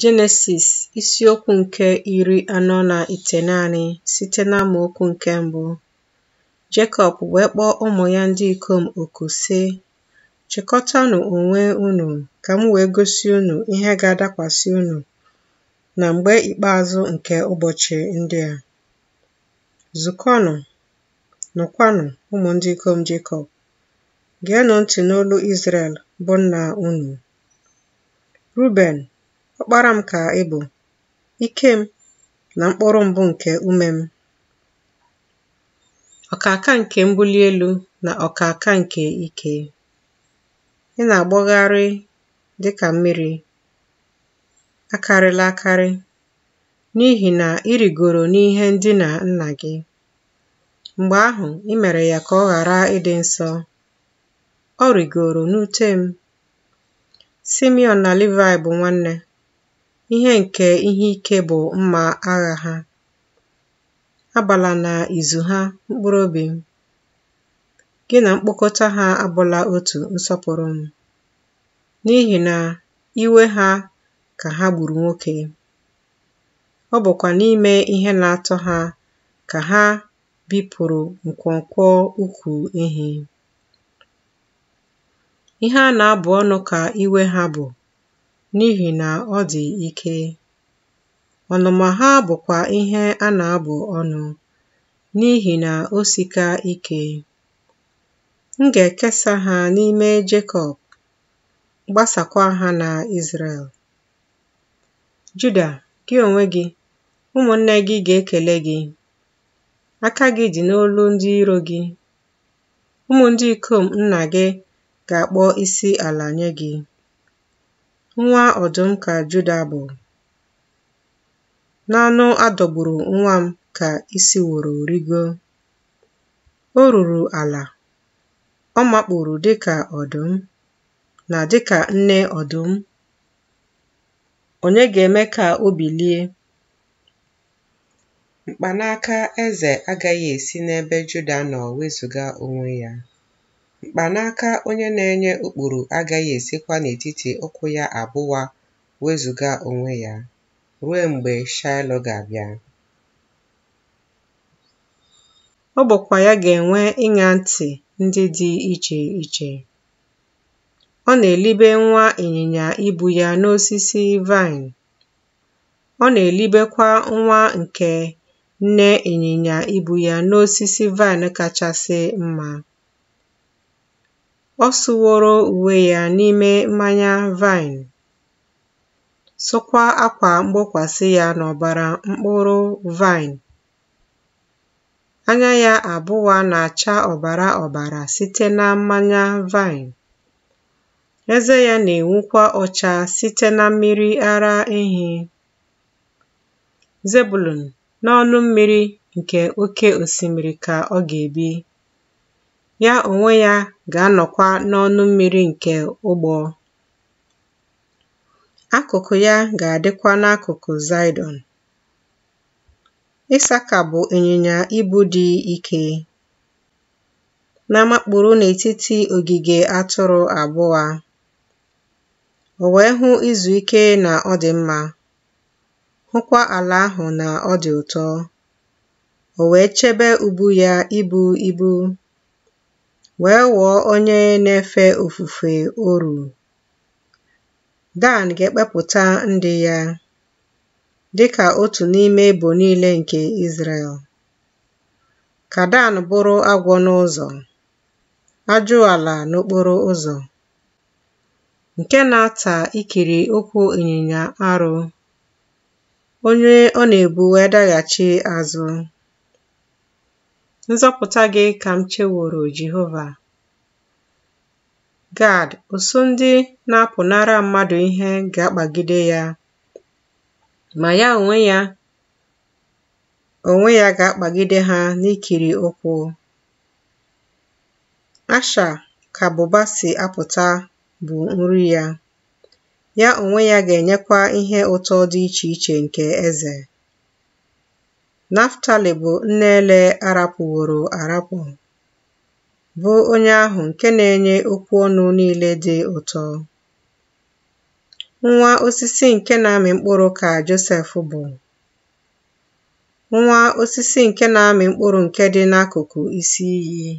Jenesis isiokwu nke iri anọ na ite naanị site amaokwu nke mbụ. Jekọb wee kpọọ ụmụ ya ndị ikom oku sị, chịkọtanụ onwe unu ka m wee gosi unu ihe ga-adakwasị unu na mgbe ikpeazụ nke ụbọchị ndị a. Zukọnụ, nụkwanụ ụmụ ndị ikom Jekọb, geenụ ntị n'olu Izrel bụ nna unu. Ruben Ọkpara m ka ị bụ, ike m, na mkpụrụ mbụ nke ume m, ọkaka nke mbuli elu na ọkaka nke ike. Ị na-agbọgharị dị ka mmiri, akarịla akarị, n'ihi na ịrịgoro n'ihe na nna gị. Mgbe ahụ, ị mere ya ka ọ ghara ịdị nsọ. Ọ rigoro n'ute m. Simeon na livai bụ nwanne. Ihe nke ihe ike bụ mma agha ha. Abala na izu ha, mkpụrụ obi m. Gị na mkpokọta ha abụla otu nsọpụrụ m, n'ihi na iwe ha ka ha gburu nwoke. Ọ bụkwa n'ime ihe na-atọ ha ka ha bipụrụ nkwonkwo ukwu ehi. Ihe a na-abụ ọnụ ka iwe ha bụ N'ihi na ọ dị ike. Ọnụma ha bụkwa ihe a na-abụ ọnụ n'ihi na o sika ike. M ga-ekesa ha n'ime Jekọb, gbasakwa ha na Izrel. Juda, gị onwe gị, ụmụnne gị ga-ekele gị. Aka gị dị n'olu ndị iro gị. Ụmụ ndị ikom nna gị ga-akpọ isi ala nye gị. nwa ọdụm ka Juda bụ. N'anụ a dọgburu nwa m ka isi woro rigo. O ruru ala, ọ makpuru dịka ọdụm na dịka nne ọdụm. Onye ga-eme ka o bilie? Mkpanaka eze agaghị esi n'ebe Juda nọ wezụga onwe ya. Mkpanaka onye na-enye ụkpụrụ agaghị esikwa n'etiti ụkwụ ya abụwa wezụga onwe ya, ruo mgbe Shiloh ga-abịa. Ọ bụkwa ya ga-enwe ịnya ntị ndị dị iche iche. Ọ na-elibe nwa ịnyịnya ibu ya n'osisi vine Ọ na-elibekwa nwa nke nne ịnyịnya ibu ya n'osisi vine kachasị mma. Ọ sụworo uwe ya n'ime mmanya vaịn, sụkwa akwa mgbokwasị ya n'ọbara mkpụrụ vaịn. Anya ya abụọ na-acha ọbara ọbara site na mmanya vaịn. Eze ya na-enwukwa ọcha site na mmiri ara ehi. Zebụlọn, n'ọnụ mmiri nke oke osimiri ka ọ ga-ebi. ya onwe ya ga-anọkwa n'ọnụ mmiri nke ụgbọ. Akụkụ ya ga-adịkwa n'akụkụ Zaịdọn. Ịsaka bụ ịnyịnya ibu dị ike na-amakpụ̀rụ n'etiti ogige atụrụ abụọ O wee hụ izu ike na ọ dị mma. hụkwa ala ahụ na ọ dị ụtọ O wee chebe ubu ya ibu ibu wee ghọọ onye na-efe ofufe Oru. Dan ga-ekpepụta ndị ya dị ka otu n'ime ebo niile nke Izrel. Ka Dan bụrụ agwọ n'ụzọ, ajụala n'okporo ụzọ, nke na-ata ikiri ụkwụ ịnyịnya arụ, onye ọ na-ebu wee daghachi azụ. Nzọpụta gị ka m cheworo Jehova. Gad, ụsụ ndị na-apụnara mmadụ ihe ga-akpagide ya, ma ya onwe ya onwe ya ga-akpagide ha n'ikiri ụkwụ. Asha ka bụba si apụta bụ nri ya, ya onwe ya ga-enyekwa ihe ụtọ dị iche iche nke eze. Naftali bụ nne ele arapụworo arapụ, bụ onye ahụ nke na-enye okwu ọnụ niile dị ụtọ. Nwa osisi nke na-amị mkpụrụ ka Josef bụ. Nwa osisi nke na-amị mkpụrụ nke dị n'akụkụ isi iyi.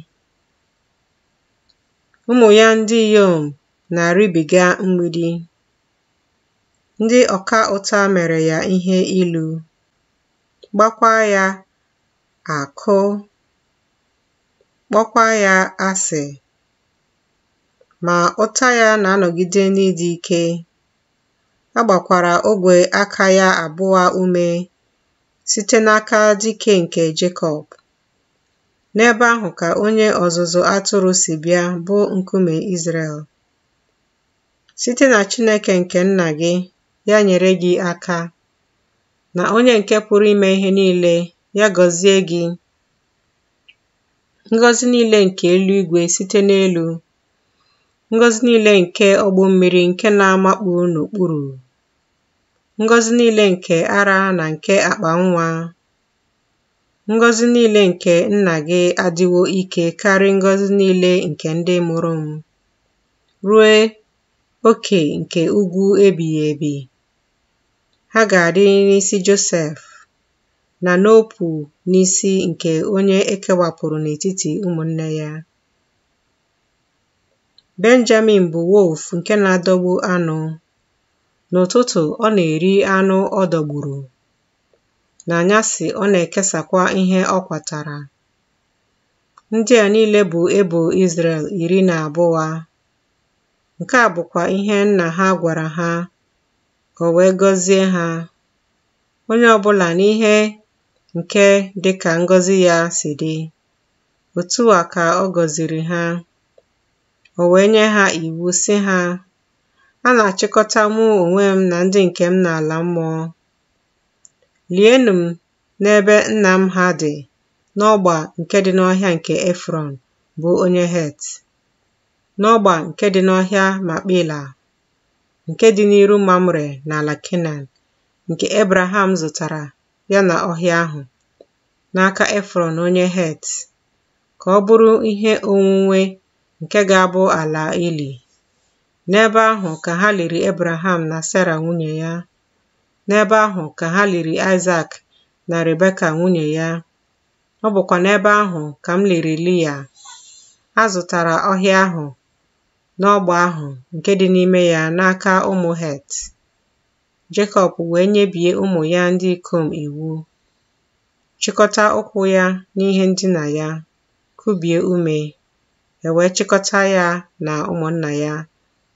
Ụmụ ya ndị inyom na-arịbiga mgbidi. Ndị ọka ụta mere ya ihe ilu. gbakwa ya akụ! kpọkwa ya asị ma ụta ya na-anọgide n'ịdị ike a gbakwara ogwe aka ya abụọ ume site n'aka dike nke Jekọb n'ebe ahụ ka onye ọzụzụ atụrụ si bịa bụ nkume Izrel site na Chineke nke nna gị ya nyere gị aka Na onye nke pụrụ ime ihe niile, ya gọzie gị: ngọzi niile nke eluigwe site n'elu; ngọzi niile nke ọgbọ mmiri nke na amakpụ n'okpuru; ngọzi niile nke ara na nke akpa nwa; ngọzi niile nke nna gị adịwo ike karị ngọzi niile nke ndị mụrụ m rue oke nke ugwu ebighị ebi. ha ga adị n'isi Josef na n'ọpụ n'isi nke onye ekewapụrụ n'etiti ụmụnne ya. Benjamin bụ wolf nke na-adọgbu anụ. N'ụtụtụ ọ na-eri anụ ọ dọgburu. N'anyasị ọ na-ekesakwa ihe ọ kwatara. Ndị a niile bụ ebo Izrel iri na abụọ. Nke a bụkwa ihe nna ha gwara ha O wee gọzie ha onye ọbụla n'ihe nke dịka ngọzi ya si dị otu a ka ọ gọziri ha o wee nye ha iwu si ha a na-achịkọta mụ onwe m na ndị nke m n'ala mmụọ lienụ m n'ebe nna m ha dị n'ọgba nke dị n'ọhịa nke Efrọn bụ onye Het n'ọgba nke dị n'ọhịa Makpela nke dị n'iru Mamre na Kenan, nke Ebraham zụtara ya na ọhịa ahụ n'aka Efron onye Het, ka ọ bụrụ ihe onwunwe nke ga-abụ ala ili. N'ebe ahụ ka ha liri Ebraham na sarah nwunye ya. N'ebe ahụ ka ha liri Isaac na Rebeka nwunye ya. Ọ bụkwa n'ebe ahụ ka m liri A zụtara ọhịa ahụ n'ọgbọ ahụ nke dị n'ime ya n'aka ụmụ Het. Jekọb wee nyebie ụmụ ya ndị ikom iwu, chịkọta ụkwụ ya n'ihe ndina ya, kubie ume, e chịkọta ya na ụmụnna ya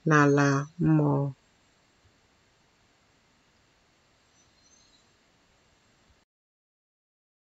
n'ala mmụọ.